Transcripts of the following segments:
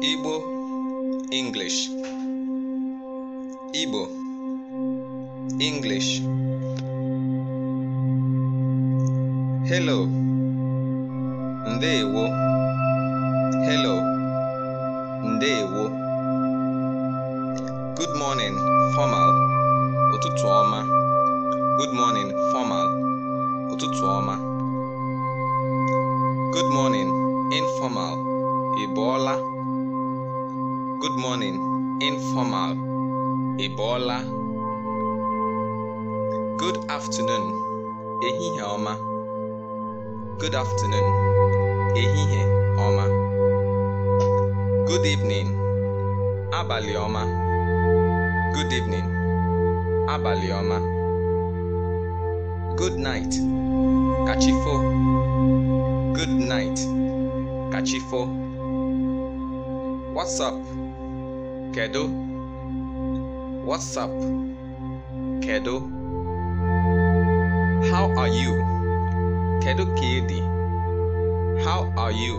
Igbo, English. Igbo, English. Hello. Ndewo. Hello. Ndewo. Good morning, formal. Ụtụtụ ọma. Good morning, formal. Ụtụtụ ọma. Good morning, informal. Ị la. Good morning, informal, Ebola. Good afternoon, Ehihie Oma. Good afternoon, Ehihie Oma. Good evening, Abali Oma. Good evening, Abali Oma. Good night, Kachifo. Good night, Kachifo. What's up? Kedu? What's up? Kedu? How are you? Kedu Kaidi? How are you?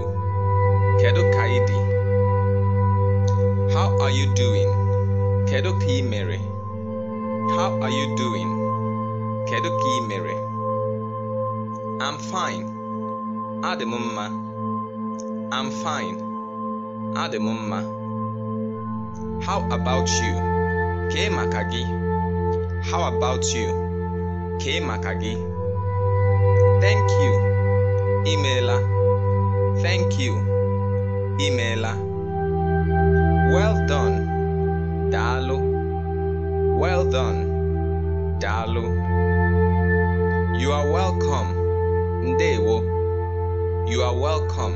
Kedu Kaidi? How are you doing? Kedu Ki Mary? How are you doing? Kedu Ki Mary? I'm fine. Ademumma. I'm fine. Ademumma. How about you? K Makagi. How about you? K Makagi. Thank you. Emailer. Thank you. Emailer. Well done. Dalu. Well done. Dalu. You are welcome. Ndewo. You are welcome.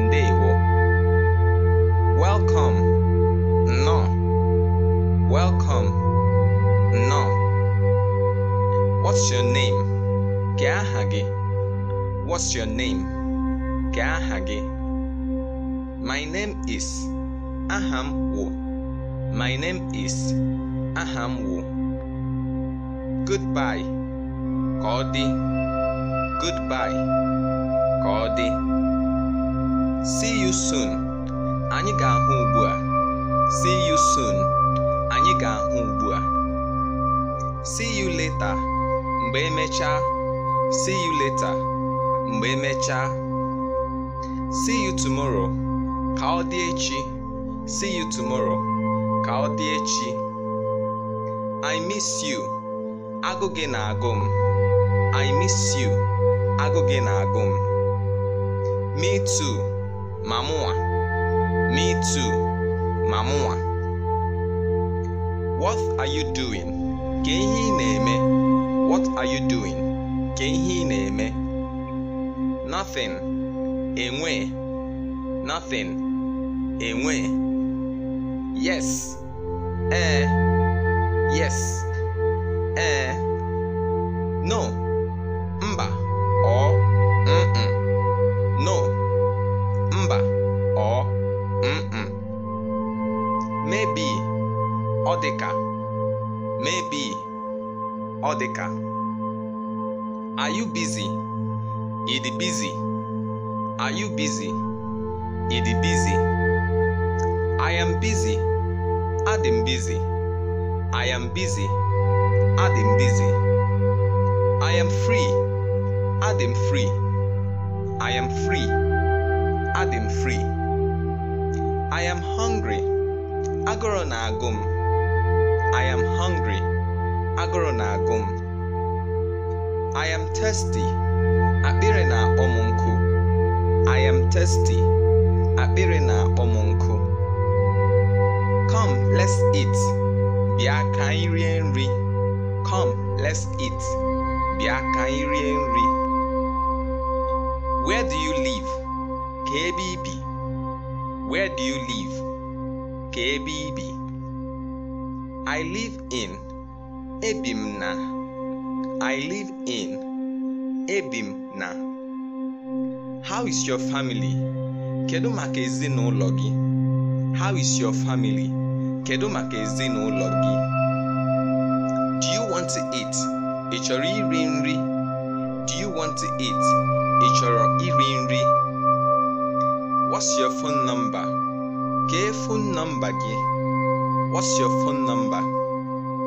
Ndewo. Welcome. No. Welcome. No. What's your name? Kya What's your name? Kya My name is Aham Wu. My name is Aham Wu. Goodbye. Cody. Goodbye. Cody. See you soon. anyi ga-ahụ ugbu a. see you soon anyị ga-ahụ ugbu a see you later mgbe emechaa see you later mgbe emechaa see you tomorrow ka ọ dị echi see you tomorrow ka ọ dị echi i miss you agụ gị na-agụ m i miss you agụ gị na-agụ m me too ma mụnwa me too Mamua. What are you doing? Ka ihe ị na-eme? What are you doing? Ka ihe ị na-eme? Nothing. Enwe. Nothing. Enwe. Yes. Ee. Eh. Yes. Ee. Eh. No. Mba. Ọ. Mm-mm. Odeka, Maybe Odeka, Are you busy? Idi busy. Are you busy? Idi busy. I am busy. Adam busy. I am busy. Adam busy. I am free. Adam free. I am free. Adam free. I am hungry. Agoro na agum. I am hungry, Agoro na agu I am na-agụ I am thirsty, akpịrị na-akpọ Come, let's eat. Bịa kairi enri. Come, let's eat. Bịa kairi enri. Where do you live? Kbb. Where do you live? Kbb. I live in ebi na I live in ebi na How is your family? Kedu maka ezinụlọ gị? How is your family? Kedu maka ezinụlọ gị? Do you want to eat? Ị chọrọ iri nri? Do you want to eat? Ị chọrọ iri nri? What's your phone number? Kee phone number gị? What's your phone number?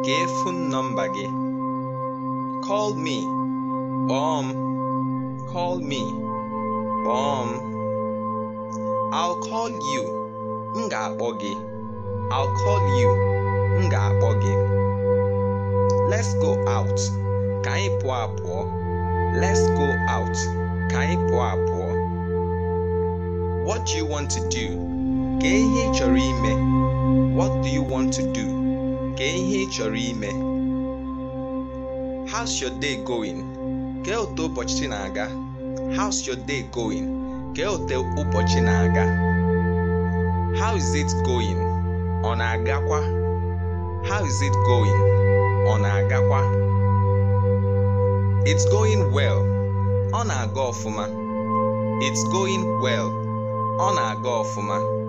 Gay phone number gay. Call me. bomb. Call me. bomb. I'll call you. Nga bogi. I'll call you. Nga bogi. Let's go out. Kai anyi apụọ. Let's go out. Kai anyị What do you want to do? Kee ihe ị chọrọ ime. What do you want to do? Kee ihe ị chọrọ ime. How's your day going? Kee otu ụbọchị na-aga. How's your day going? Kee otu ụbọchị na-aga. How is it going? Ọ na-agakwa. How is it going? Ọ na-agakwa. It's going well. Ọ na-aga ọfụma. It's going well. Ọ na-aga ọfụma.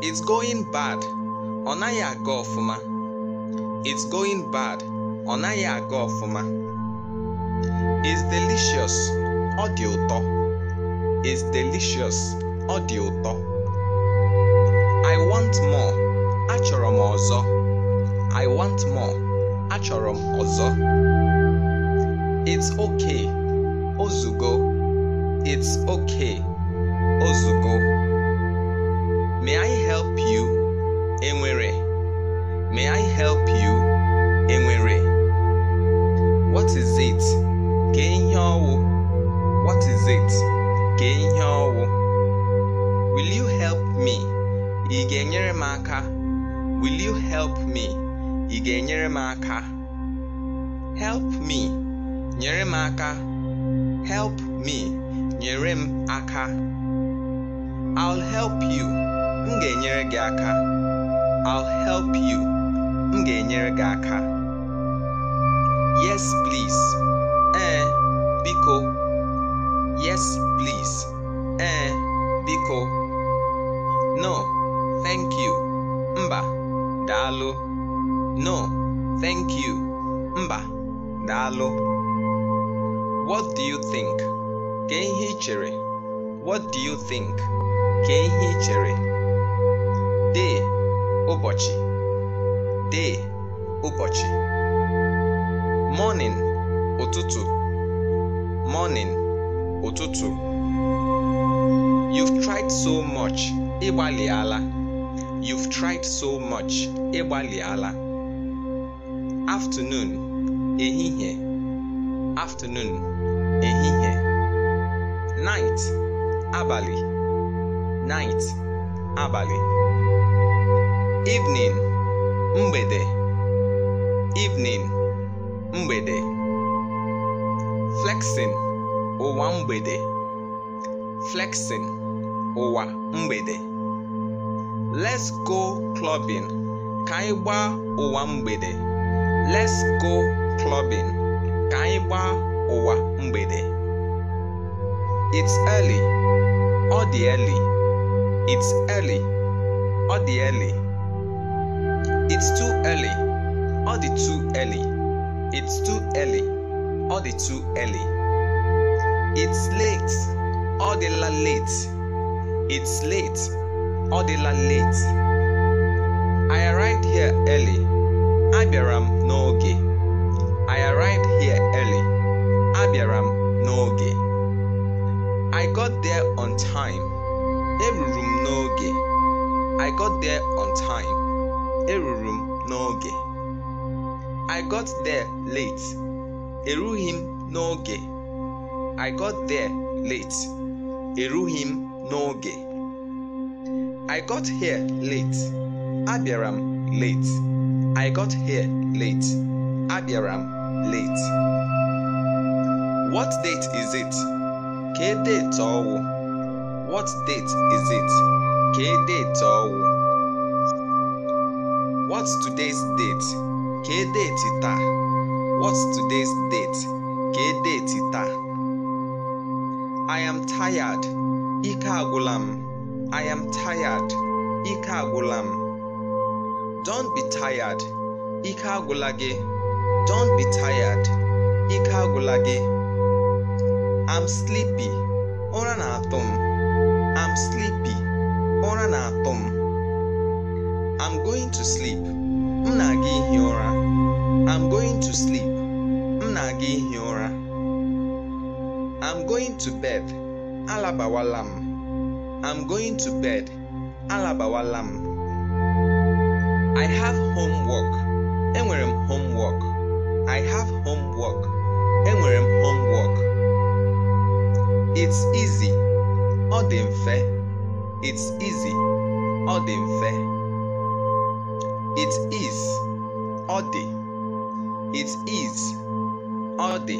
It's going bad. Ọ naghị aga ọfụma. It's going bad. Ọ naghị aga ọfụma. It's delicious. Ọ dị ụtọ. It's delicious. Ọ dị ụtọ. I want more. Achọrọ m ọzọ. I want more. Achọrọ m ọzọ. It's okay. Ozugo. It's okay. Ozugo. May I help you? Enwere. May I help you? Enwere. What is it? Kenyawo. What is it? Kenyawo. Will you help me? Igenyere maka. Will you help me? Igenyere maka. Help me. Nyere maka. Help me. Nyere aka. I'll help you ga-enyere gị aka I'll help you m ga-enyere gị aka yes please ee biko yes please ee biko no thank you mba daalụ no thank you mba daalụ what do you think ka ihe ị chere what do you think ka ihe ị chere dee ụbọchị dee ụbọchị morning ụtụtụ morning ụtụtụ you've tried so much ịgbalịala you've tried so much ịgbalịala afternoon ehihie afternoon ehihie night abalị night abalị evening mgbede evening mgbede flexing ụwa mgbede flexing ụwa mgbede let's go clubbing ka anyị gbaa ụwa mgbede let's go clubbing ka anyị gbaa ụwa mgbede it's early ọ dị early it's early ọ dị early It's too early. All the too early. It's too early. All the too early. It's late. All the la late. It's late. All the la late. I arrived here early. Abiram nooge. I arrived here early. Abiram nooge. I got there on time. Every room I got there on time eruru m n'oge i got there late erughị m n'oge i got there late erughị m n'oge i got here late abịara m late i got here late abịara m late what date is it ka date ọwụ what date is it ka date ọwụ What's today's date? date títà. What's today's date? date títà. I am tired. Ikagulam. I am tired. Ikagulam. Don't be tired. Ikagulage. gị. Don't be tired. Ikagulage. gị. I'm sleepy. ura i I'm sleepy. Ụra going to sleep m na i i'm going to sleep m na i i'm going to bed alabawala i i'm going to bed alabawala I have homework enwere homework i have homework enwere homework it's easy ọ dị mfe it's easy ọ dị mfe it is ọ dị. It is ọ dị.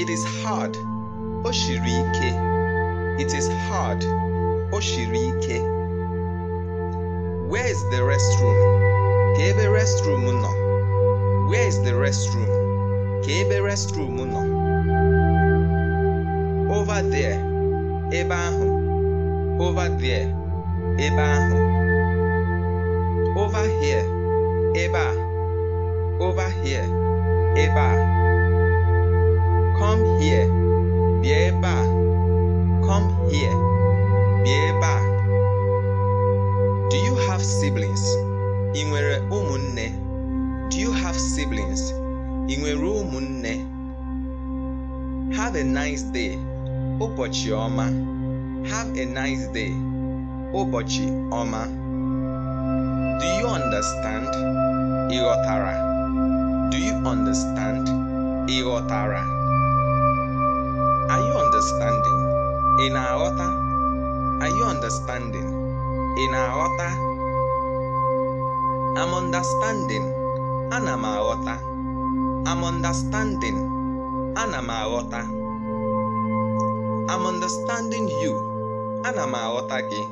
It is hard. Oshirike. It is hard. Oshirike. Where is the restroom? Ka ebe restroom nọ. Where is the restroom? Ka ebe restroom nọ. Over there. Ebe ahụ. Over there. Ebe ahụ. over here ebe a come here bịa ebe a bịa ebe a do you have siblings ị nwere ụmụnne do you have siblings ị nwere ụmụnne have a nice day ụbọchị ọma have a nice day ụbọchị ọma Do you understand? Igotara. Do you understand? Igotara. Are you understanding? In Aota? Are you understanding? In Aota? I'm understanding. Ana m i I'm understanding. Ana m i I'm understanding you. Ana m gị.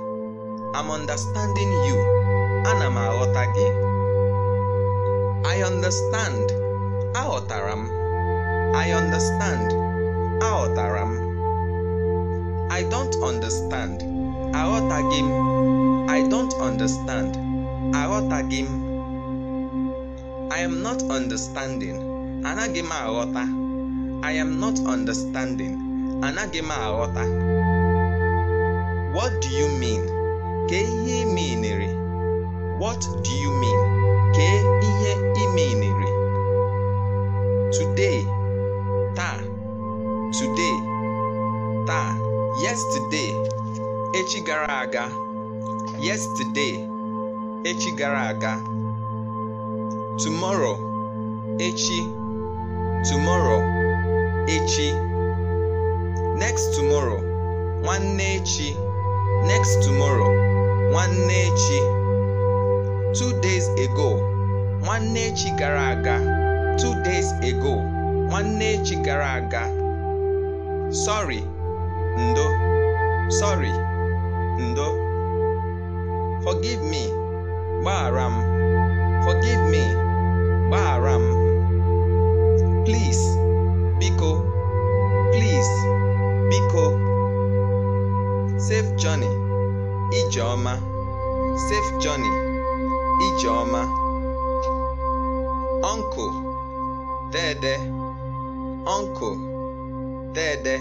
I'm understanding you ana m aghọta gị I understand aghọtara m I understand aghọtara m I don't understand aghọtaghị m I don't understand aghọtaghị m I am not understanding anaghị m aghọta I am not understanding anaghị m aghọta What do you mean? Ka ihe meanere What do you mean? Kee ihe ị Today, taa. Today, taa. Yesterday, echi gara aga. Yesterday, echi gara aga. Tomorrow, echi. Tomorrow, echi. Next tomorrow, nwanne echi. Next tomorrow, nwanne echi two days ago nwanne echi gara aga two days ago nwanne echi gara aga sorry ndo sorry ndo forgive me gbaghara m forgive me gbaghara m please biko please biko safe journey ijeọma safe journey Ijeoma: Ọnkụ Dede, Ọnkụ Dede,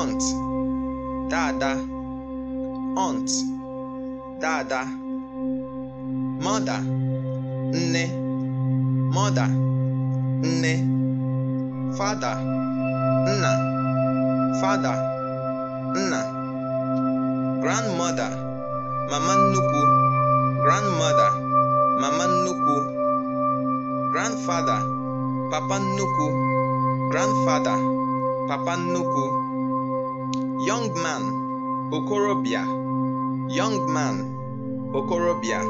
Ọnt Dada, Ọnt Dada, Mọda Nne, Mọda Nne, Fada Nna, Fada Nna, Grandmother, Mama Nnukwu grandmother mama nnukwu grandfather papa nnukwu grandfather papa nnukwu young man okorobịa young man okorobịa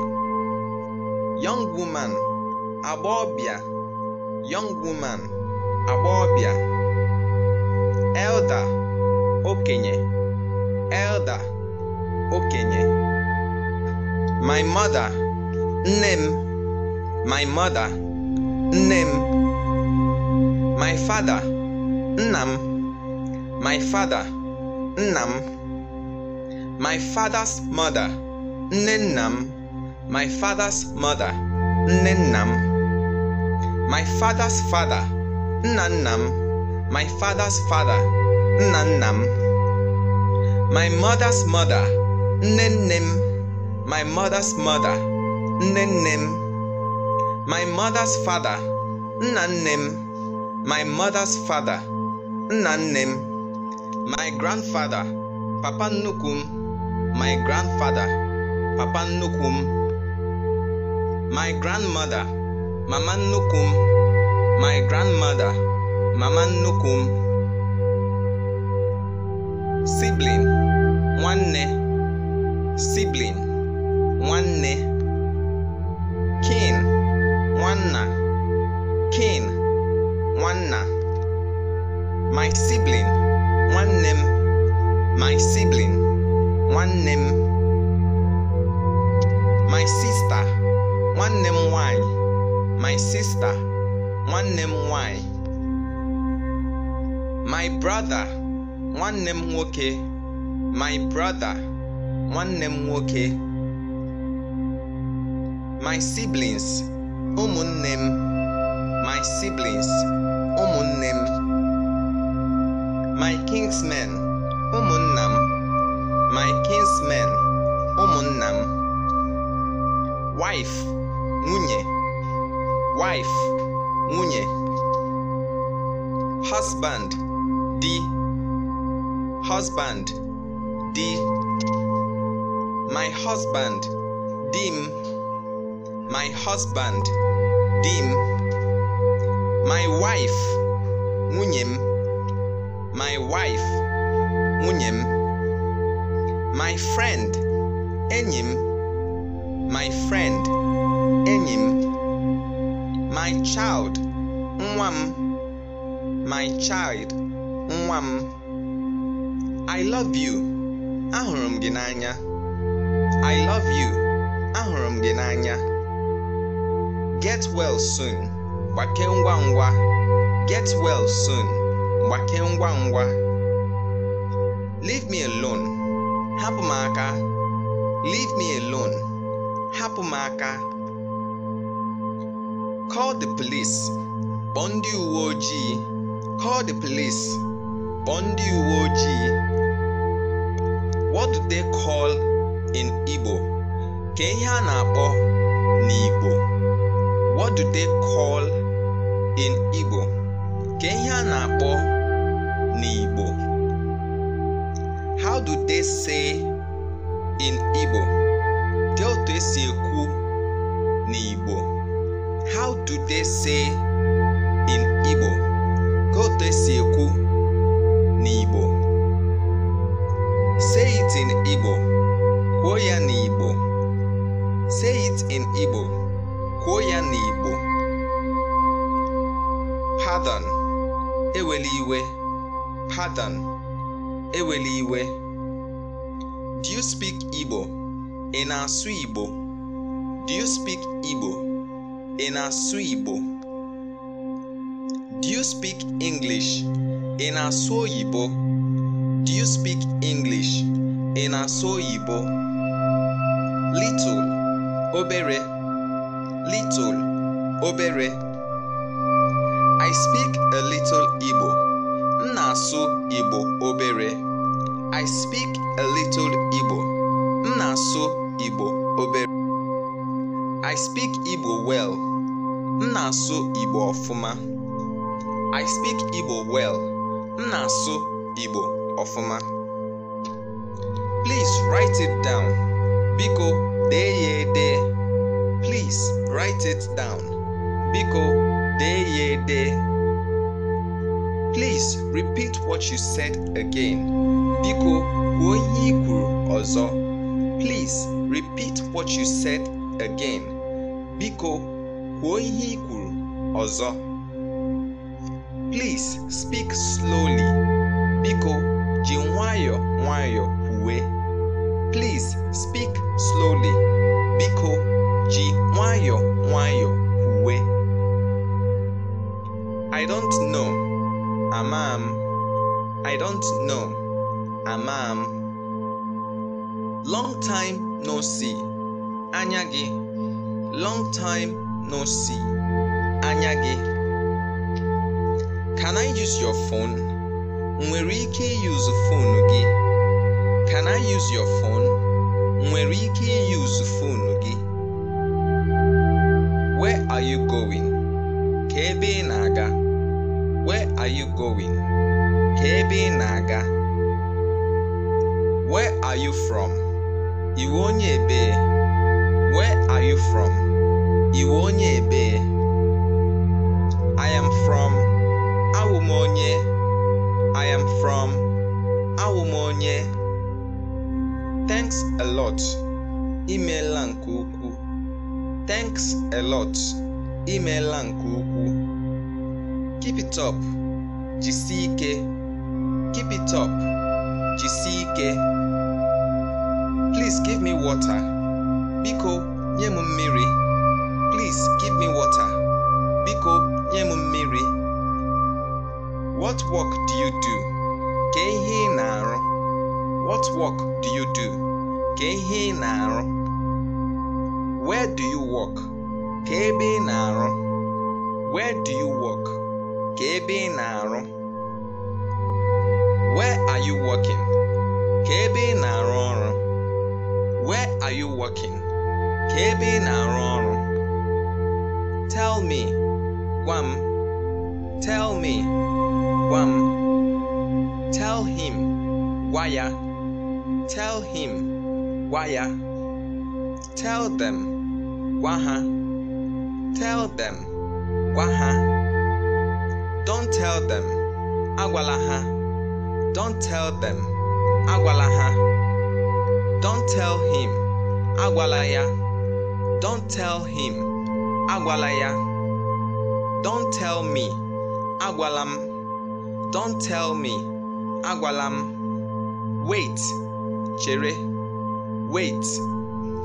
young woman agbọbịa young woman agbọbịa elder okenye elder okenye my mother nem. my mother nem. my father Nam my father Nam my father's mother Ninnam my father's mother Ninnam my father's father Nannam my father's father Nannam my mother's mother Ninnam my mother's mother, Nenem, my mother's father, Nanem, my mother's father, Nanem, my grandfather, Papa Nukum, my grandfather, Papa Nukum, my grandmother, Mama Nukum, my grandmother, Mama Nukum, sibling, one sibling. nwanne kin nwanna kin nwanna my sibling nwanne m my sibling nwanne m my sister nwanne m nwanyị my sister nwanne m nwanyị my brother nwanne m nwoke my brother nwanne m nwoke my siblings ụmụnne m my siblings ụmụnne m my kinsman, ụmụnna m my kinsman, ụmụnna m wife nwunye wife nwunye husband di husband di my husband di m my husband dim. my wife nwunye my wife nwunye my friend enyim. my friend enyim. my child nwa my child nwa I love you ahurum ginanya. I love you ahurum ginanya. Get well soon. Gbake ngwa Get well soon. Gbake ngwa Leave me alone. hapumaka. Leave me alone. hapumaka. Call the police. Kpọọ ndị Call the police. Kpọọ ndị What do they call in Igbo? Ka ihe a n'Igbo. what do they call in Igbo? Ka ihe a na-akpọ n'Igbo. How do they say in Igbo? Dị otu esi ekwu n'Igbo. How do they say in Igbo? Ka otu esi ekwu n'Igbo. Say it in Igbo. Kwuo ya n'Igbo. Say it in Igbo. n'Igbo pardon eweli iwe iwe do you speak Igbo ị na-asụ Igbo do you speak Igbo ị na-asụ Igbo do you speak English ị na-asụ oyibo do you speak English ị na-asụ oyibo little obere little obere i speak a little igbo Nasu Ibo igbo obere i speak a little igbo Nasu Ibo igbo obere i speak igbo well Nasu Ibo igbo ọfụma i speak igbo well Nasu Ibo igbo ọfụma please write it down biko deye de. please write it down. Biko deyede. Please repeat what you said again. Biko onye kwuru Please repeat what you said again. Biko kwuo ihe Please speak slowly. Biko Jinwayo nwayọ nwayọ Please speak slowly. Biko ji nwayọ nwayọ uwe I don't know amam. I I don't know amam. long time no see anya gị long time no see anya gị can I use your phone nwere ike use phone gị can I use your phone nwere ike use phone gị are you going? Ka ebe ị na-aga. Where are you going? Ka ebe ị na-aga. Where are you from? Iwe onye ebe. Where are you from? Iwe onye ebe. I am from. Awumonye. I am from. Awumonye. Thanks a lot. Imeela nke ukwuu. Thanks a lot imeela nke ukwuu keep it up jisie ike keep it up jisie ike please give me water biko nye m mmiri please give me water biko nye m mmiri what work do you do ka ihe ị na-arụ what work do you do ka ihe ị na-arụ where do you work ka ebe ị na-arụ where do you work ka ebe ị na-arụ where are you working ka ebe ị na-arụ ọrụ where are you working ka ebe ị na-arụ ọrụ tell me gwa m tell me gwa m tell him gwa ya tell him gwa ya tell them gwa ha Tell them. Gwa ha. Don't tell them. agwalaha. Don't tell them. agwalaha. Don't tell him. agwalaya. Don't tell him. agwalaya. Don't tell me. Agwalam. Don't tell me. Agwalam. Wait. Chere. Wait.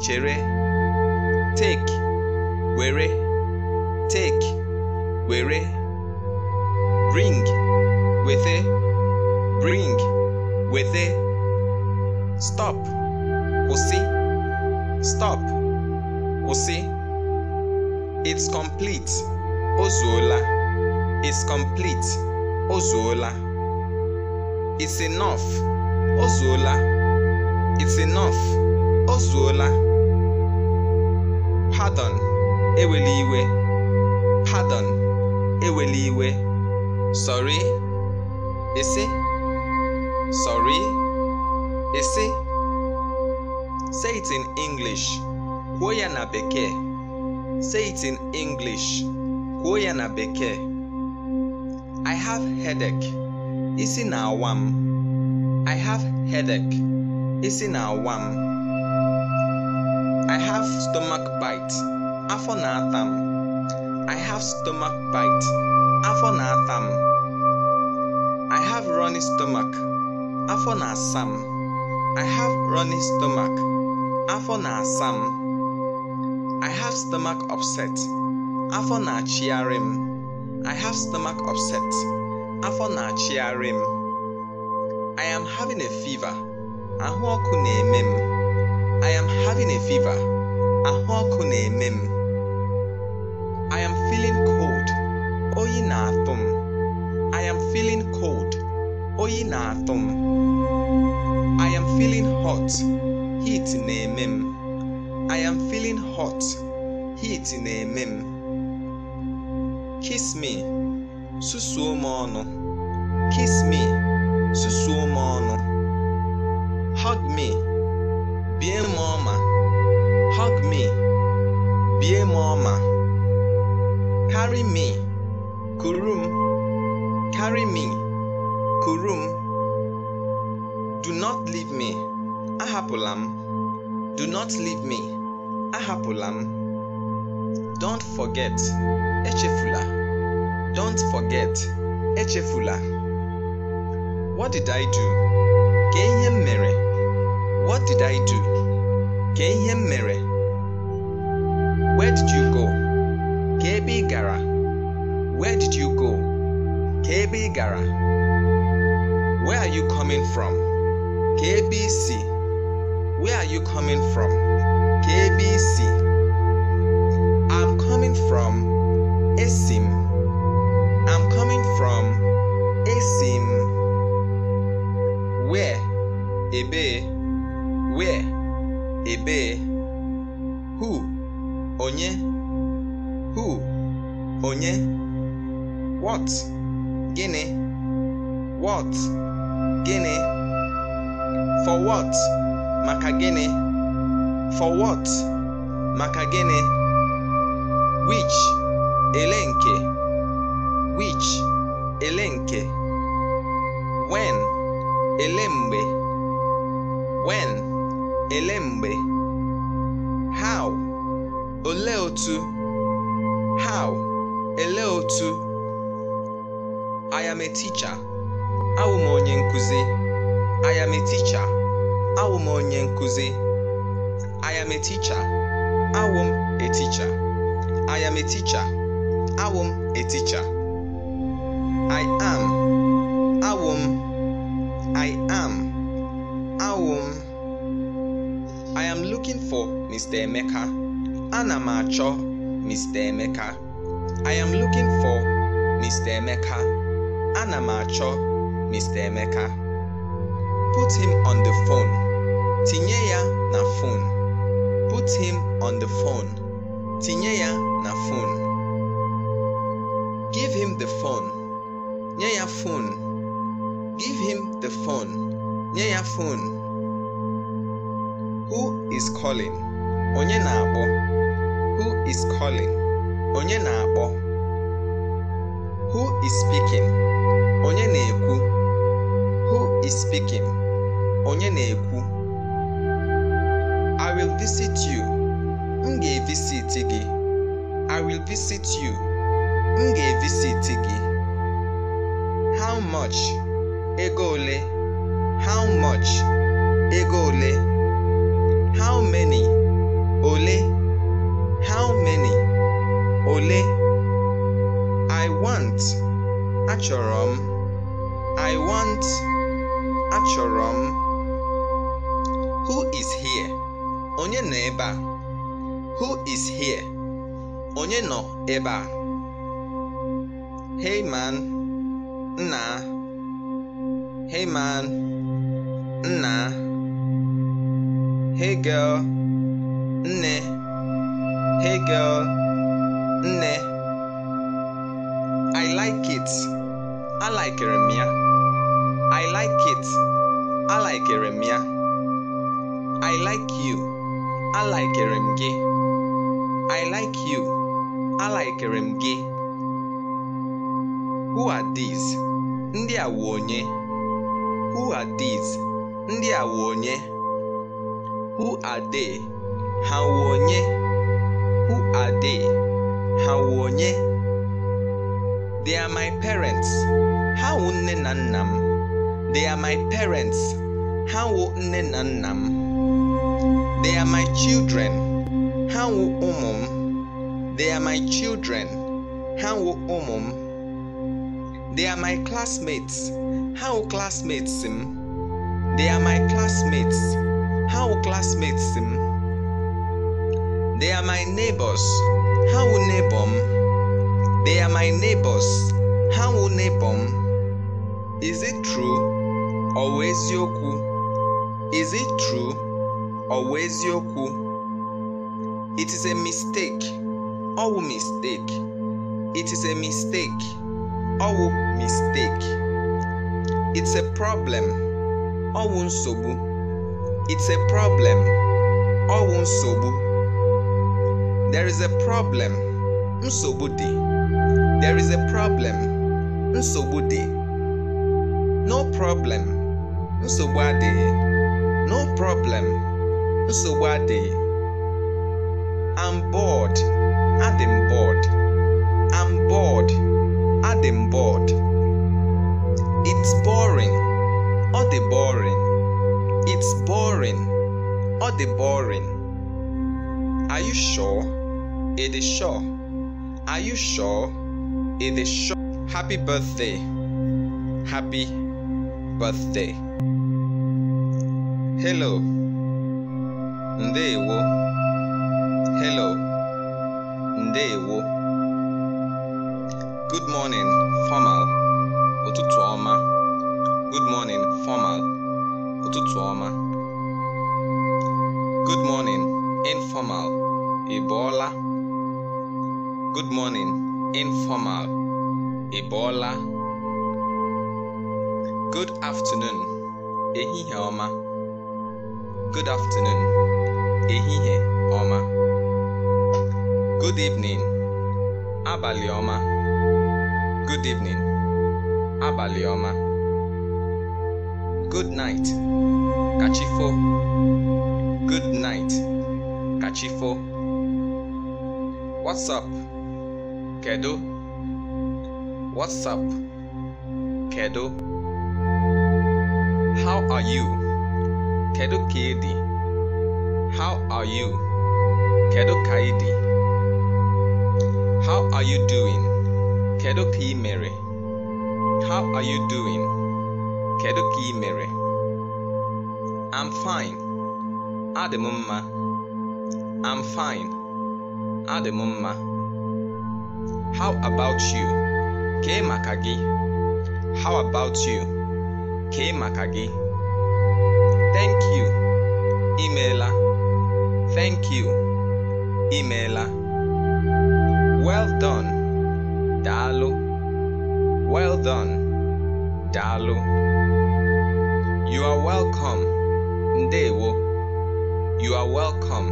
Chere. Take. Were take were bring wete bring wete stop Osi. stop Osi. it's complete o it's complete o it's enough o it's enough o pardon ewela iwe pardon ewela sorry isi sorry isi say it in english kwuo na say it in english kwuo na i have headache isi na-awa m I have headache isi na-awa m I have stomach bite afọ na-ata I have stomach bite, afọ na-ata m. I have runny stomach, afọ na-asa m. I have runny stomach, afọ na-asa m. I have stomach upset, afọ na-achịgharị m. I have stomach upset, afọ na-achịgharị m. I am having a fever, ahụ ọkụ na-eme m. I am having a fever, ahụ ọkụ na-eme m feeling cold. Oyinathum. I am feeling cold. Oyinathum. I am feeling hot. Heat nemim. I am feeling hot. Heat nemim. Kiss me. Susuomono. Kiss me. Susuomono. Hug me. a mama. Hug me. a mama. Carry me, Kurum. Carry me, Kurum. Do not leave me, Ahapulam. Do not leave me, Ahapulam. Don't forget, Echefula. Don't forget, Echefula. What did I do? Kenyem Mere. What did I do? Kenyem Mere. Where did you go? KB Gara. Where did you go? KB Gara. Where are you coming from? KBC. Where are you coming from? KBC. I'm coming from Esim. I'm coming from Esim. Where? Ebe. Where? Ebe. Who? Onye. onye what gịnị what gịnị for what maka gịnị for what maka gịnị which ele nke which ele nke when ele mgbe when ele mgbe how olee otu how otu I am a teacher onye nkụzi I am a teacher onye nkụzi I am a teacher awụ m a teacher I am a teacher awụ I am awụ I am awụ I am looking for Mr. Emeka ana m achọ Mr. Emeka I am looking for Mr. Emeka. Ana Mr. Emeka. Put him on the phone. Tinye na phone. Put him on the phone. Tinye na phone. Give him the phone. Nye phone. Give him the phone. Nye phone. Who is calling? Onye na-akpọ? is calling? onye na-akpọ who is speaking onye na-ekwu who is speaking onye na-ekwu i will visit you m ga-evisit gị i will visit you m ga-evisit gị how much ego ole how much ego ole how many ole how many ole I want achọrọ m I want achọrọ m who is here onye nọ ebe a who is here onye nọ ebe a hey man nna hey man nna hey girl nne hey girl nne I like it alikere m ya I like it alikere m ya I like you alikere m gị I like you alikere m gị Who are these? Ndị a wụ onye? Who are these? Ndị a wụ onye? Who are they? Ha wụ onye? Who are they? hawonye they are my parents hawo nne na they are my parents hawo nne na they are my children hawo umum, oh they are my children hawo umum, oh they are my classmates hawo classmates m they are my classmates hawo classmates m they are my neighbors how will neighbor? They are my neighbors. How will neighbor? Is it true? Or eziokwu? Is it true? Or eziokwu? It is a mistake. Or mistake. It is a mistake. Or mistake. It's a problem. Or wụ sobu. It's a problem. Or wụ sobu. There is a problem. Nsogbu dị. There is a problem. Nsogbu No problem. Nsogbu adịghị. No problem. Nsogbu adịghị. I'm bored. Adị bored. I'm bored. Adị bored. It's boring. Ọ dị boring. It's boring. Ọ dị boring. Are you sure? It is sure. Are you sure? It is sure. Happy birthday. Happy birthday. Hello. Ndewo. Hello. Ndewo. Good morning, formal. Ụtụtụ ọma. Good morning, formal. Ụtụtụ ọma. Good morning, informal. Ị Good morning, informal, Ebola. Good afternoon, Ehihie Oma. Good afternoon, Ehihie Oma. Good evening, Abali Oma. Good evening, Abali Oma. Good night, Kachifo. Good night, Kachifo. What's up? Kado, What's up? Kado, How are you? Kado Kaidi? How are you? Kado Kaidi? How are you doing? Kado Ki Mary? How are you doing? Kado Ki Mary? I'm fine. Ademumma. I'm fine. Ademumma. How about you? K Makagi. How about you? K Makagi. Thank you. Emailer. Thank you. Emailer. Well done. Dalu. Well done. Dalu. You are welcome. Ndewo. You are welcome.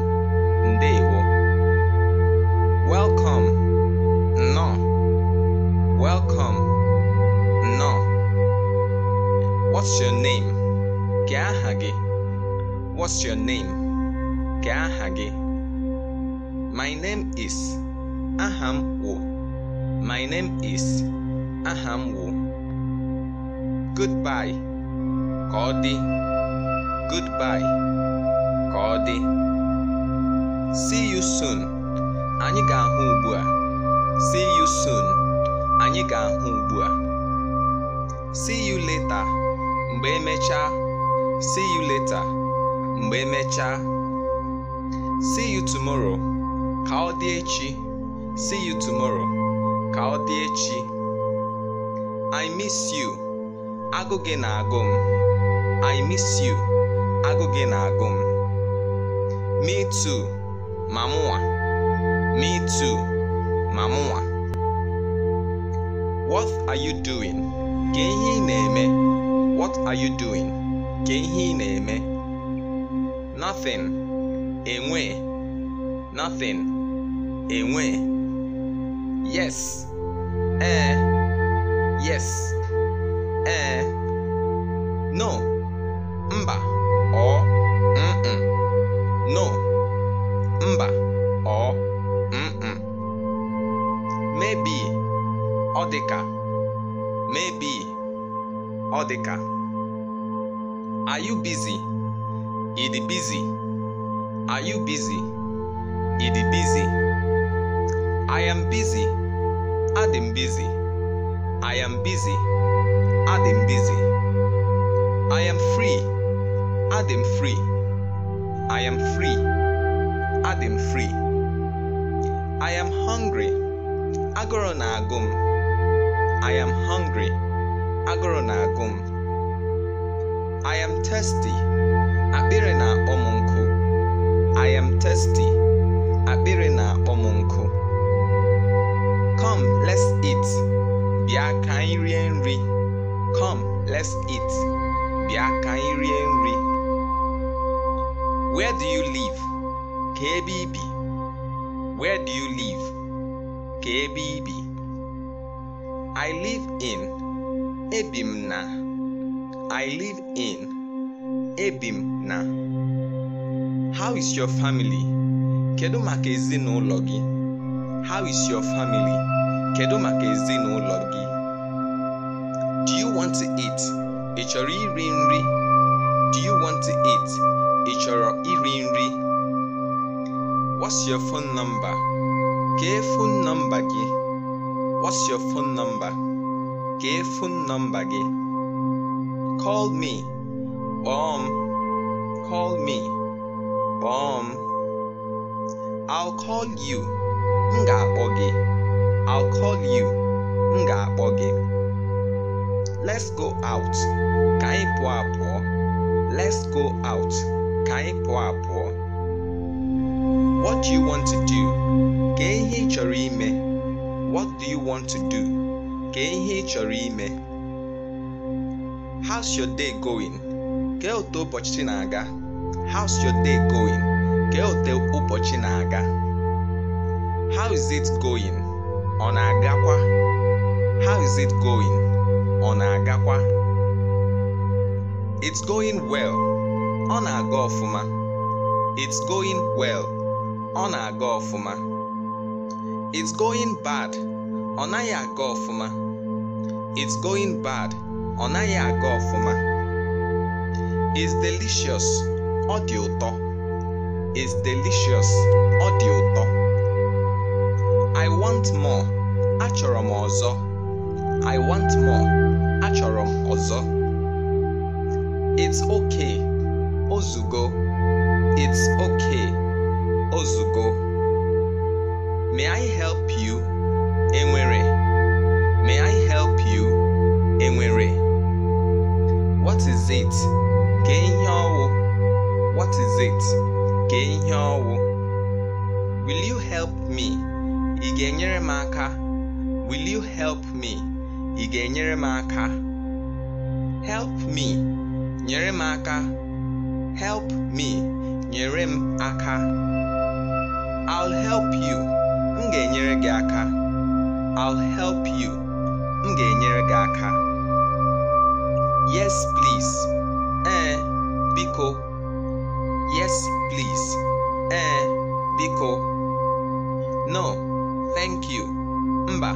Ndewo. What's your name? Ka aha gị? What's your name? aha gị? My name is. Aha m wụ. My name is. Aha m wụ. Goodbye. Ka ọ dị. Goodbye. Ka ọ dị. See you soon. Anyị ga-ahụ ugbu a. See you soon. Anyị ga-ahụ ugbu a. See you later. mgbe emechaa see you later mgbe emechaa see you tomorrow ka ọ dị echi see you tomorrow ka ọ dị echi i miss you agụ gị na-agụ m i miss you agụ gị na-agụ m me too ma mụnwa me too ma mụnwa what are you doing? Ka ihe ị na-eme What are you doing? Ka ihe ị na-eme? Nothing. Enwe. Nothing. Enwe. Yes. Eh. Yes. Eh. No. Mba. Ọ. Mm-mm. No. Mba. Ọ. Mm-mm. Maybe. Ọ dịka. Maybe. Are you busy? Idi busy. Are you busy? Idi busy. I am busy. Adam busy. I am busy. Adam busy. I am free. Adam free. I am free. Adam free. I am hungry. Agoro na agum. I am hungry agụrụ na-agụ m I am thirsty akpịrị na-akpọ m nkụ I am thirsty akpịrị na-akpọ m nkụ Come let's eat bịa ka anyị rie nri Come let's eat bịa ka anyị rie nri Where do you live? ka ebe ibi Where do you live? ka ebe ibi I live in ebi na I live in ebi na how is your family kedu maka ezinụlọ gị how is your family kedu maka ezinụlọ gị do you want to eat ị chọrọ iri nri do you want to eat ị chọrọ iri nri what's your phone number kee phone number gị what's your phone number gefun nombagi. Call me, bomb. Call me, bomb. I'll call you, ngabogi. I'll call you, ngabogi. Let's go out, kai kaipuapo. Let's go out, kai kaipuapo. What do you want to do? Gehi chorime. What do you want to do? kee ihe ị chọrọ ime how's your day going kee otu ụbọchị na-aga how's your day going kee otu ụbọchị na-aga how is it going ọ na-agakwa how is it going ọ na-agakwa it's going well ọ na-aga ọfụma it's going well ọ na-aga ọfụma it's going bad ọ naghị aga ọfụma It's going bad. Ọ naghị aga ọfụma. It's delicious. Ọ dị ụtọ. It's delicious. Ọ dị ụtọ. I want more. Achọrọ m ọzọ. I want more. Achọrọ m ọzọ. It's okay. Ozugo. It's okay. Ozugo. May I help you? Enwere. May I help you? Enwere? What is it? Ka ihe ọwụ? What is it? Ka ihe ọwụ? Will you help me? Ị ga-enyere m aka? Will you help me? Ị ga-enyere m aka? Help me. Nyere m aka. Help me. Nyere m aka. I'll help you. M ga-enyere gị aka. I'll help you. m ga-enyere gị aka yes please ee biko yes please ee biko no thank you mba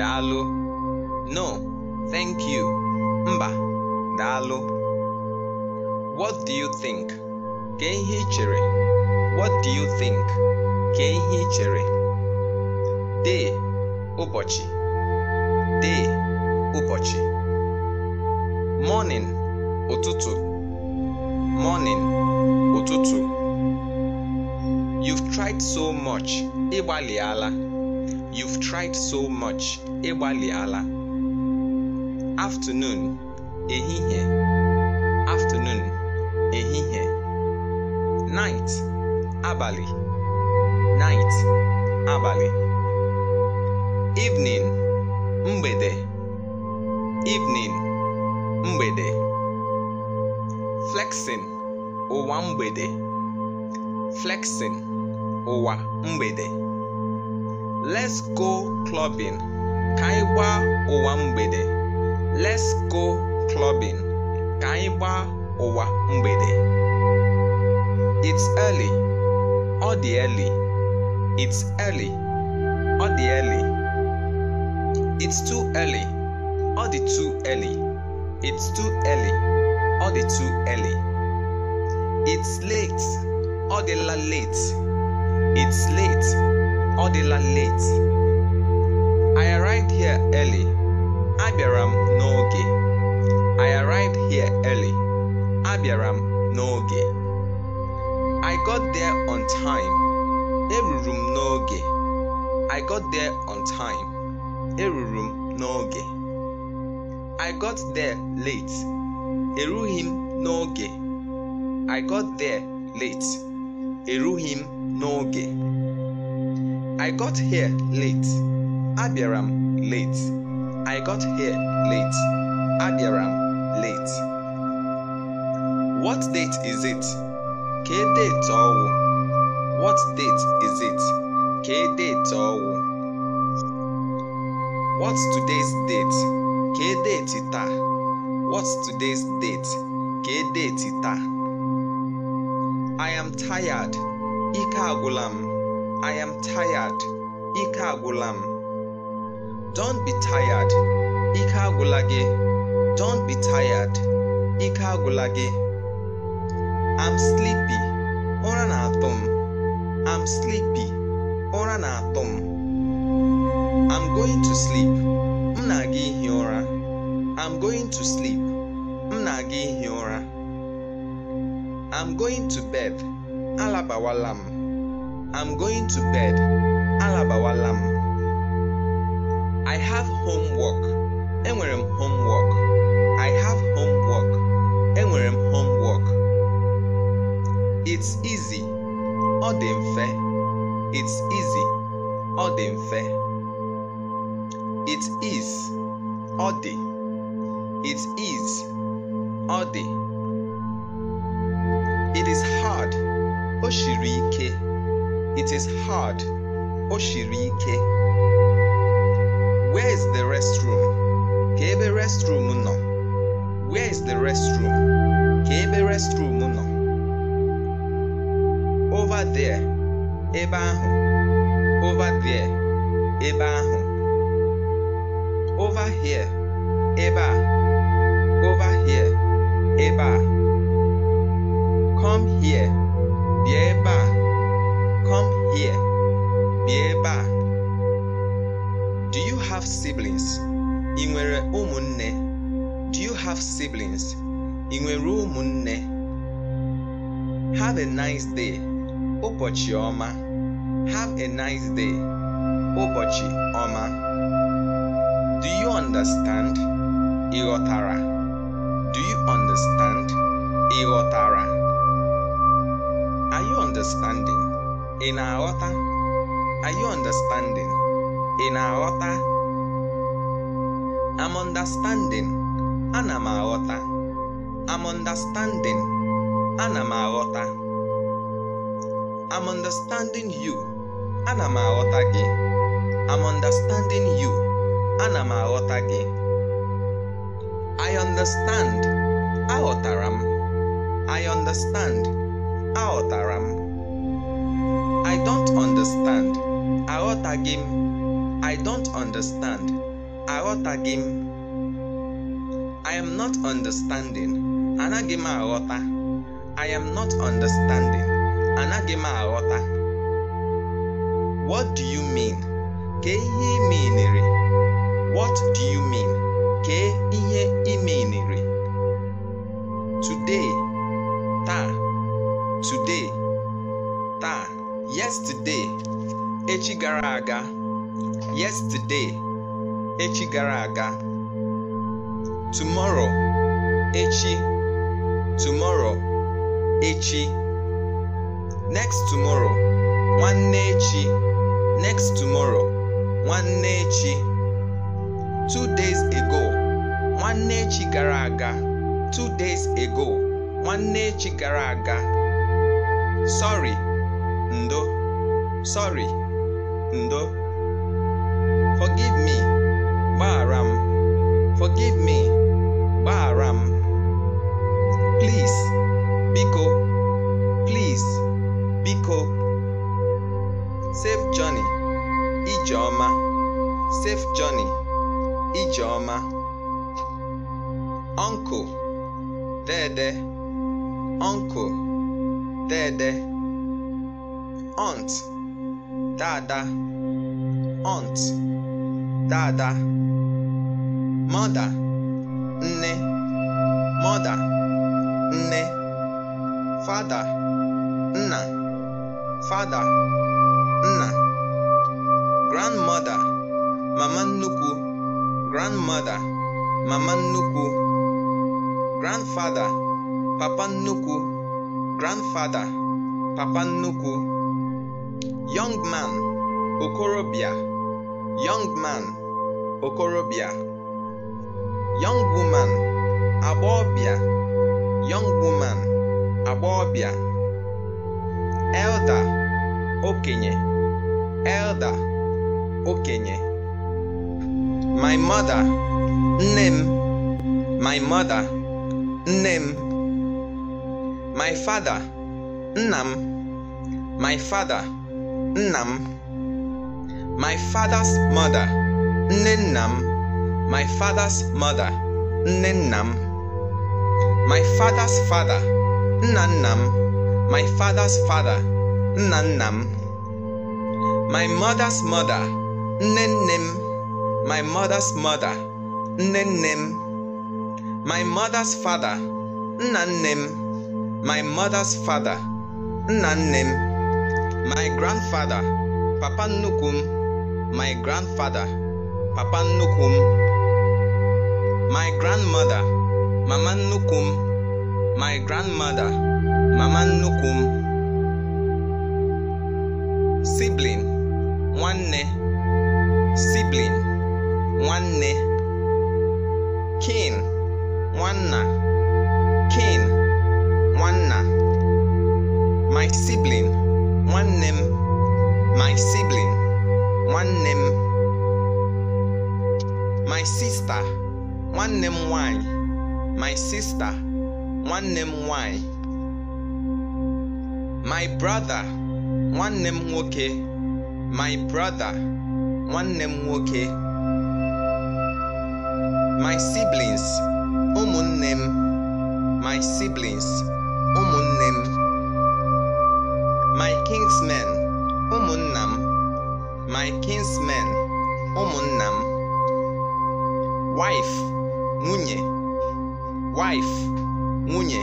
daalụ no thank you mba daalụ what do you think ka ihe ị chere what do you think ka ihe ị chere dee ụbọchị day ụbọchị morning ụtụtụ morning ụtụtụ you've tried so much ịgbalịala you've tried so much ịgbalịala afternoon ehihie afternoon ehihie night abalị night abalị evening mgbede evening mgbede flexing ụwa mgbede flexing ụwa mgbede let's go clubbing ka anyị gbaa ụwa mgbede let's go clubbing ka anyị gbaa ụwa mgbede it's early ọ dị early it's early ọ dị early It's too early. All the too early. It's too early. All the too early. It's late. All the la late. It's late. All the la late. I arrived here early. Abiaram n'oge. I arrived here early. Abiaram n'oge. I got there on time. Eruru m I got there on time eruru m n'oge i got there late erughị m n'oge i got there late erughị m n'oge i got here late abịara m late i got here late abịara m late what date is it K date ọwụ what date is it K date ọwụ What's today's date? ka deeti taa? What's taa? I am tired. Ike agwụla I am tired. agwụla m. Don't be tired. Ike agwụla gị. Don't agwụla gị. I'm sleepy. Ụra na atọ sleepy. Ụra na atọ m. I'm going to sleep. M na i I'm going to sleep. M na i I'm going to bed. Alabawala i I'm going to bed. Alabawala I have homework. Enwere m homework. I have homework. Enwere m homework. It's easy. Ọ dị mfe. It's easy. Ọ dị mfe. It is all day. It is all day. It is hard. Oshirike. It is hard. Oshirike. Where is the restroom? Kebe restroom no. Where is the restroom? Kebe restroom no. Over there. Ebe Over there. Ebe over here ebe a over here ebe a come here bịa ebe a come here bịa ebe a do you have siblings ị nwere ụmụnne do you have siblings ị nwere ụmụnne have a nice day ụbọchị ọma have a nice day ụbọchị ọma Do you understand ịghọtara? Do you understand ịghọtara? Are you understanding? i Are you understanding? i i I'm understanding. Ana m i I'm understanding. Ana m i I'm understanding you. Ana m gị. I'm understanding you ana m aghọta gị I understand aghọtara m I understand aghọtara m I don't understand aghọtaghị m I don't understand aghọtaghị m I am not understanding anaghị m aghọta I am not understanding anaghị m aghọta What do you mean? Ka ihe ị What do you mean? Kee ihe ị Today, ta. Today, ta. Yesterday, echi gara aga. Yesterday, echi gara aga. Tomorrow, echi. Tomorrow, echi. Next tomorrow, nwanne echi. Next tomorrow, nwanne echi two days ago nwanne echi gara aga two days ago nwanne echi gara aga sorry ndo sorry ndo forgive me gbaghara m forgive me gbaghara m please biko please biko safe journey ijeoma safe journey Ijeọma, ọnkụ Dede, ọnkụ Dede, Ọnt Dada, Ọnt Dada, Mọda Nne, Mọda Nne, Fada Nna, Fada Nna, Grandmother, Mama Nnukwu grandmother mama nnukwu grandfather papa nnukwu grandfather papa nnukwu young man okorobịa young man okorobịa young woman agbọbịa young woman agbọbịa elder okenye elder okenye my mother Nim, my mother Nim, my father Nam, my father Nam, my father's mother Ninnam, my father's mother Ninnam, my father's father Nannam, my father's father Nannam, my mother's mother Ninim my mother's mother nne my mother's father nanem. my mother's father nanem. my grandfather papa nukum. my grandfather papa nukum. my grandmother mama nukum. my grandmother mama nukum. sibling nwanne sibling nwanne kin nwanna kin nwanna my sibling nwanne m my sibling nwanne m my sister nwanne m nwanyị my sister nwanne m nwanyị my brother nwanne m nwoke my brother nwanne m nwoke my siblings ụmụnne m my siblings ụmụnne m my kinsmen ụmụnna m my kinsmen ụmụnna m wife nwunye wife nwunye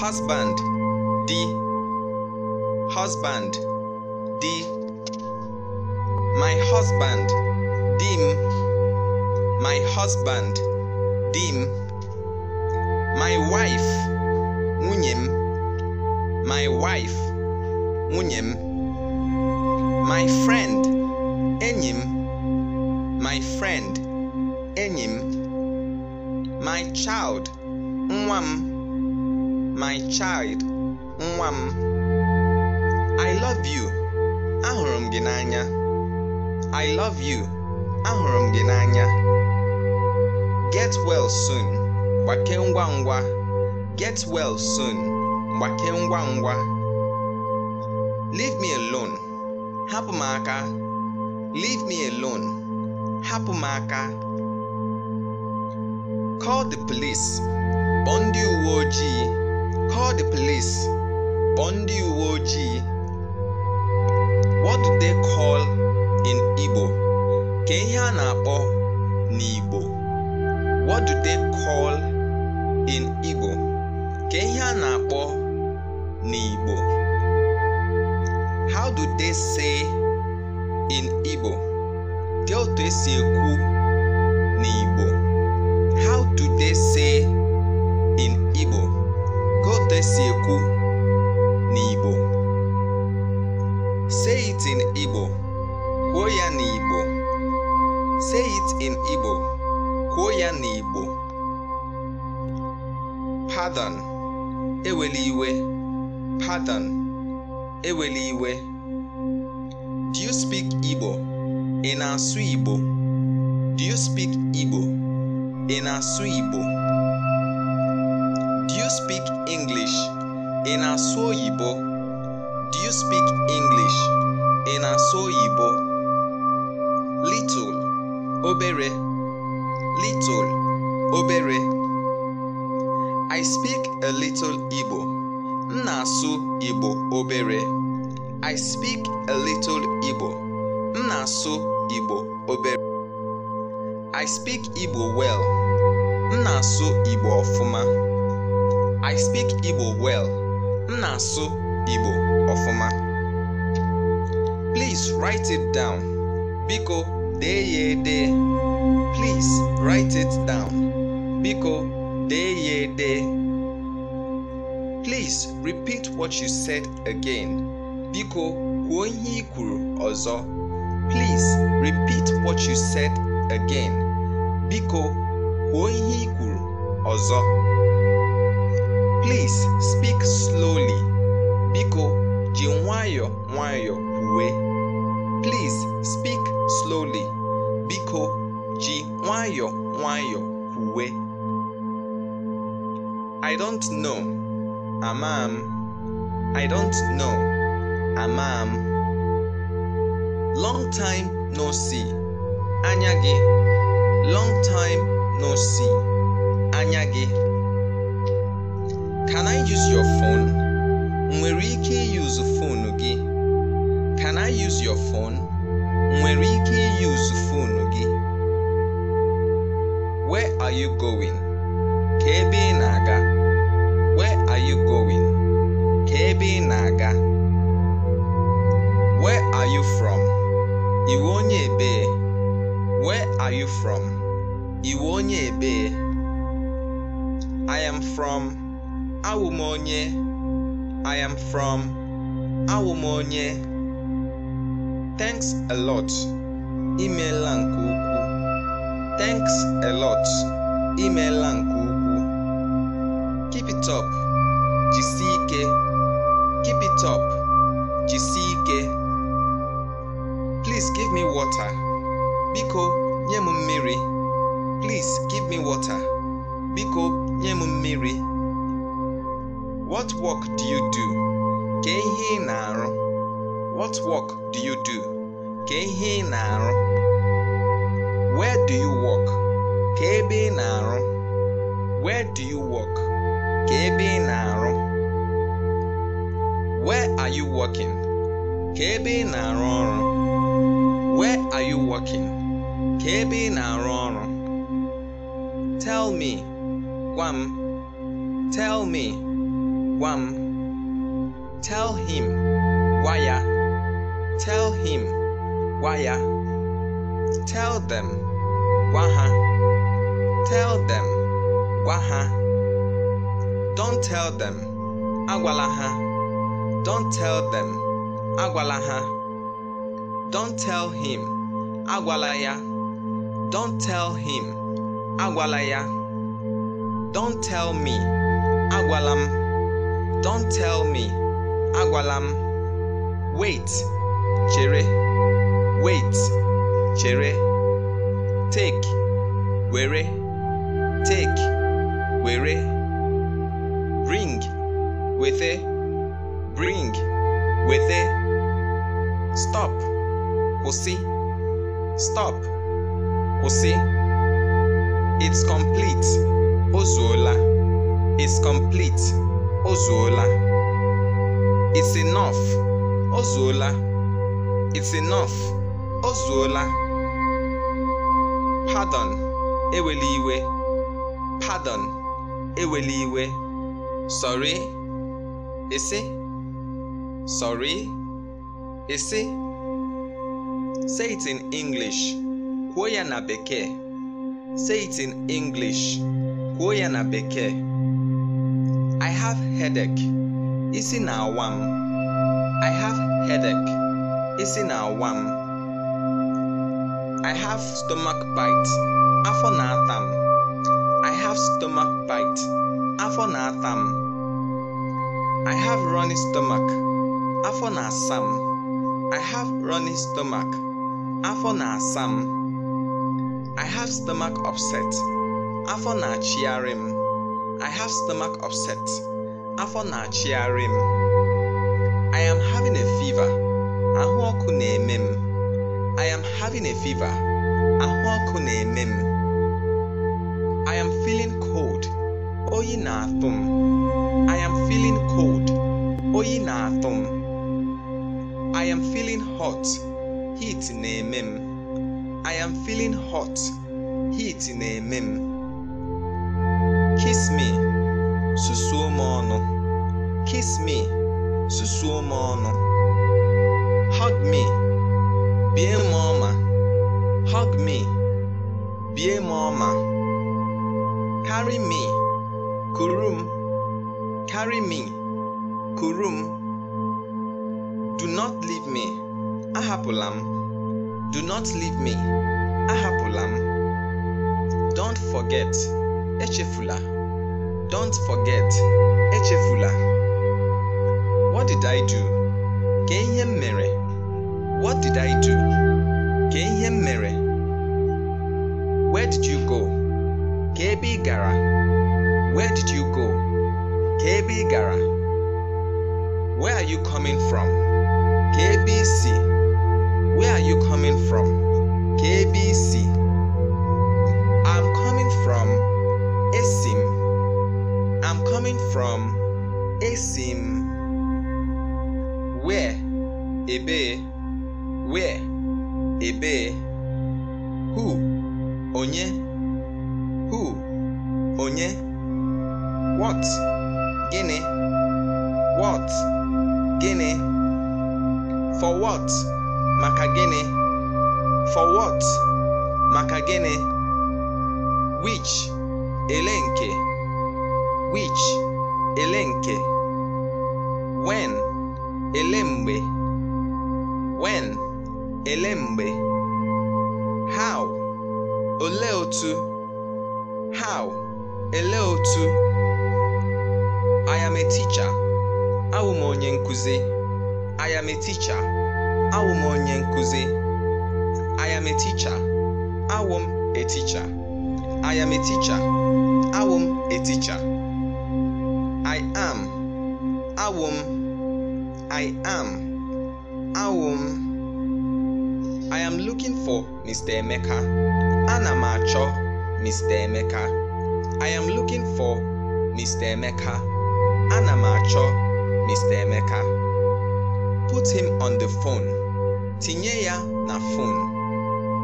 husband di husband di my husband di m my husband dim my wife nwunye my wife nwunye my friend enyim. my friend enyim. my child nwa my child nwa I love you ahurum ginanya. i love you ahurum ginanya. Get well soon. Gbake ngwa. Get well soon. Gbake ngwa. Leave me alone. Hapụ Leave me alone. Hapụ Call the police. bondi ndị Call the police. bondi ndị What do they call in Igbo? Ka ihe a na-akpọ n'Igbo. what do they call in igbo ka ihe a na-akpọ n'igbo how do they say in igbo ka otu esi ekwu n'igbo how do they say in igbo ka otu esi ekwu n'igbo say it in igbo kwuo ya n'igbo say it in igbo kwuo ya n'Igbo Padan eweli iwe Padan eweli iwe do you speak Igbo ị na-asụ Igbo do you speak Igbo ị na-asụ Igbo do you speak English ị na-asụ oyibo do you speak English ị na-asụ oyibo little obere little obere i speak a little igbo Nasu Ibo igbo obere i speak a little igbo Nasu Ibo igbo obere i speak igbo well Nasu Ibo igbo ọfụma i speak igbo well Nasu Ibo igbo ọfụma please write it down biko dee ya Please write it down. Biko deye de. Please repeat what you said again. Biko kwuo ihe ọzọ. Please repeat what you said again. Biko kwuo ihe ọzọ. Please speak slowly. Biko ji nwayọọ kwe. Please speak slowly. Biko ji nwayọ nwayọ kwuwe I don't know ama m I don't know ama m long time no see anya gị long time no see anya gị can I use your phone nwere ike use phone gị can I use your phone nwere ike use phone gị Where are you going? Ka ebe ị na-aga. Where are you going? Ka ebe ị na-aga. Where are you from? Iwe onye ebee. Where are you from? Iwe onye ebee. I am from. Awumonye. I am from. Awumonye. Thanks a lot. Imeela nke ukwuu. Thanks a lot. Imeela nke ukwuu. Keep it up. Jisie ike. Keep it up. Jisie ike. Please give me water. Biko, nye m mmiri. Please give me water. Biko, nye m mmiri. What work do you do? Kee ihe ị na-arụ. What work do you do? Kee ihe ị na-arụ. Where do you work? Ka ebe Where do you work? Ka ebe Where are you working? Ka ebe Where are you working? Ka ebe Tell me. Wam. Tell me. Wam. Tell him. Waya. Tell him. Waya. Tell them. Waha. Tell them. Waha. Don't tell them. Agwalaha. Don't tell them. Agwalaha. Don't tell him. Agwalaya. Don't tell him. Agwalaya. Don't tell me. Agwalam. Don't tell me. Agwalam. Wait. Chere. Wait. Chere. take were take were bring wethe bring wethe stop kwụsị stop kwụsị it's complete o zuola it's complete o zuola it's enough o zuola it's enough o zuola Pardon, eweli iwe. Pardon, Sorry, isi. Sorry, isi. Say it in English. Kwuo ya na Bekee. Say it in English. Kwuo ya na Bekee. I have headache. Isi na-awa na-awa m. I have stomach bite. Afọ na-ata m. I have stomach bite. Afọ na-ata m. I have runny stomach. Afọ na-asa m. I have runny stomach. Afọ na-asa m. I have stomach upset. Afọ na-achịgharị m. I have stomach upset. Afọ na-achịgharị m. I am having a fever. Ahụ ọkụ na-eme m. I am having a fever. Ahụ ọkụ na-eme I am feeling cold. Oyi na-atụ m. I am feeling cold. Oyi na-atụ m. I am feeling hot. Heat ne mem. I am feeling hot. Heat ne eme Kiss me. Susu m Kiss me. Susu m Hug me. Be a mama, Hug me. Be a mama, Carry me. Kurum, Carry me. Kurum, Do not leave me. Ahapụla Do not leave me. Ahapụla Don't forget. Echefula. Don't forget. Echefula. What did I do? Ka him m what did I do? Ka ihe mere? Where did you go? Ka gara? Where did you go? Ka gara? Where are you coming from? KBC, Where are you coming from? KBC. ị I'm coming from Esim. I'm coming from Esim. where I am a teacher. am a teacher. I am. Awum. I am. Awum. I am looking for Mr. Emeka. Anamacho Mr. Emeka. I am looking for Mr. Emeka. Anamacho Mr. Emeka. Put him on the phone. Tinye na phone.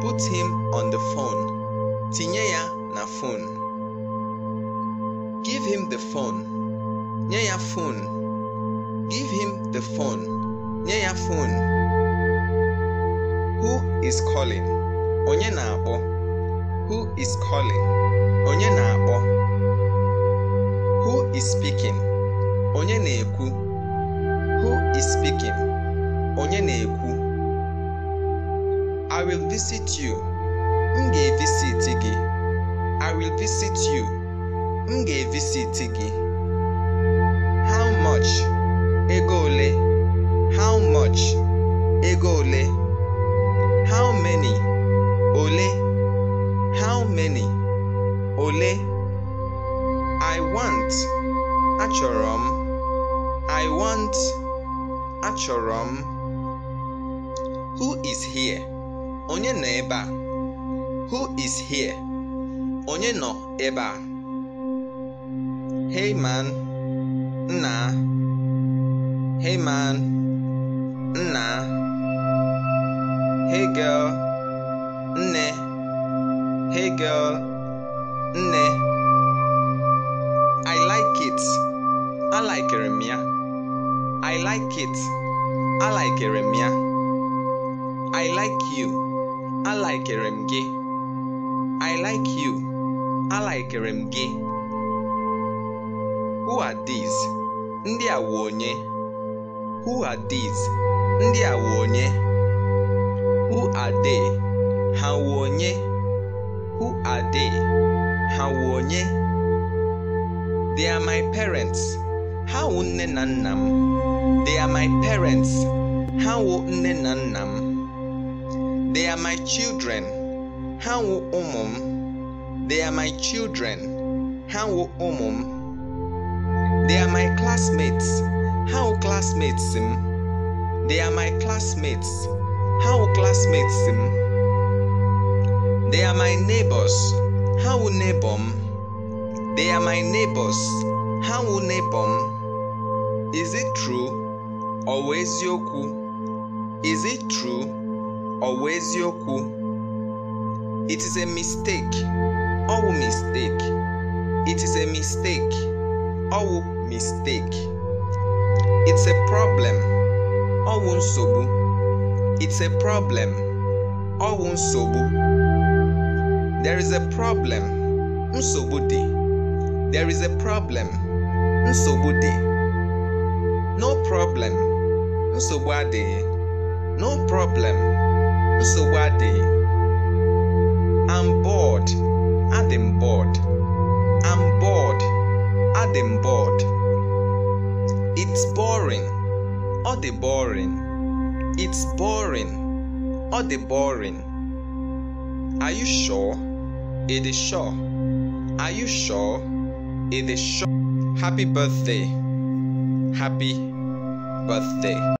Put him on the phone. Tinye na phone give him the phone near your phone give him the phone near your phone who is calling onye na-akpọ who is calling onye na-akpọ who is speaking onye na-ekwu who is speaking onye na-ekwu i will visit you m ga-evisiti gị I will visit you. M ga-evisit gị. How much? Ego ole? How much? Ego ole? How many? Ole? How many? Ole? I want. Achọrọ m. I want. Achọrọ m. Who is here? Onye nọ ebe a? Who is here? onye nọ ebe a hey man nna hey man nna hey girl nne hey girl nne i like it alikere m ya i like it alikere m ya i like you alikere m gị i like you alaikere m gị who are these ndị a wụ onye who are these ndị a wụ onye who are they ha wụ onye who are they ha wụ onye they are my parents ha wụ nne na nna m they are my parents ha wụ nne na nna m they are my children ha wụ ụmụ m They are my children. How omum. They are my classmates. How classmates him. They are my classmates. How classmates him. They are my neighbors. How neighbor? They are my neighbors. How neighbor? Is it true? Always yoku. Is it true? Always yoku. It is a mistake all mistake it is a mistake all mistake it's a problem all sobu. it's a problem all sobu. there is a problem Unsobudi. there is a problem Unsobudi. no problem nsogbu no problem nsogbu adịghị Adam bored. I'm bored. Adam bored. It's boring. Or the boring. It's boring. Or the boring. Are you sure? It is sure. Are you sure? It is sure. Happy birthday. Happy birthday.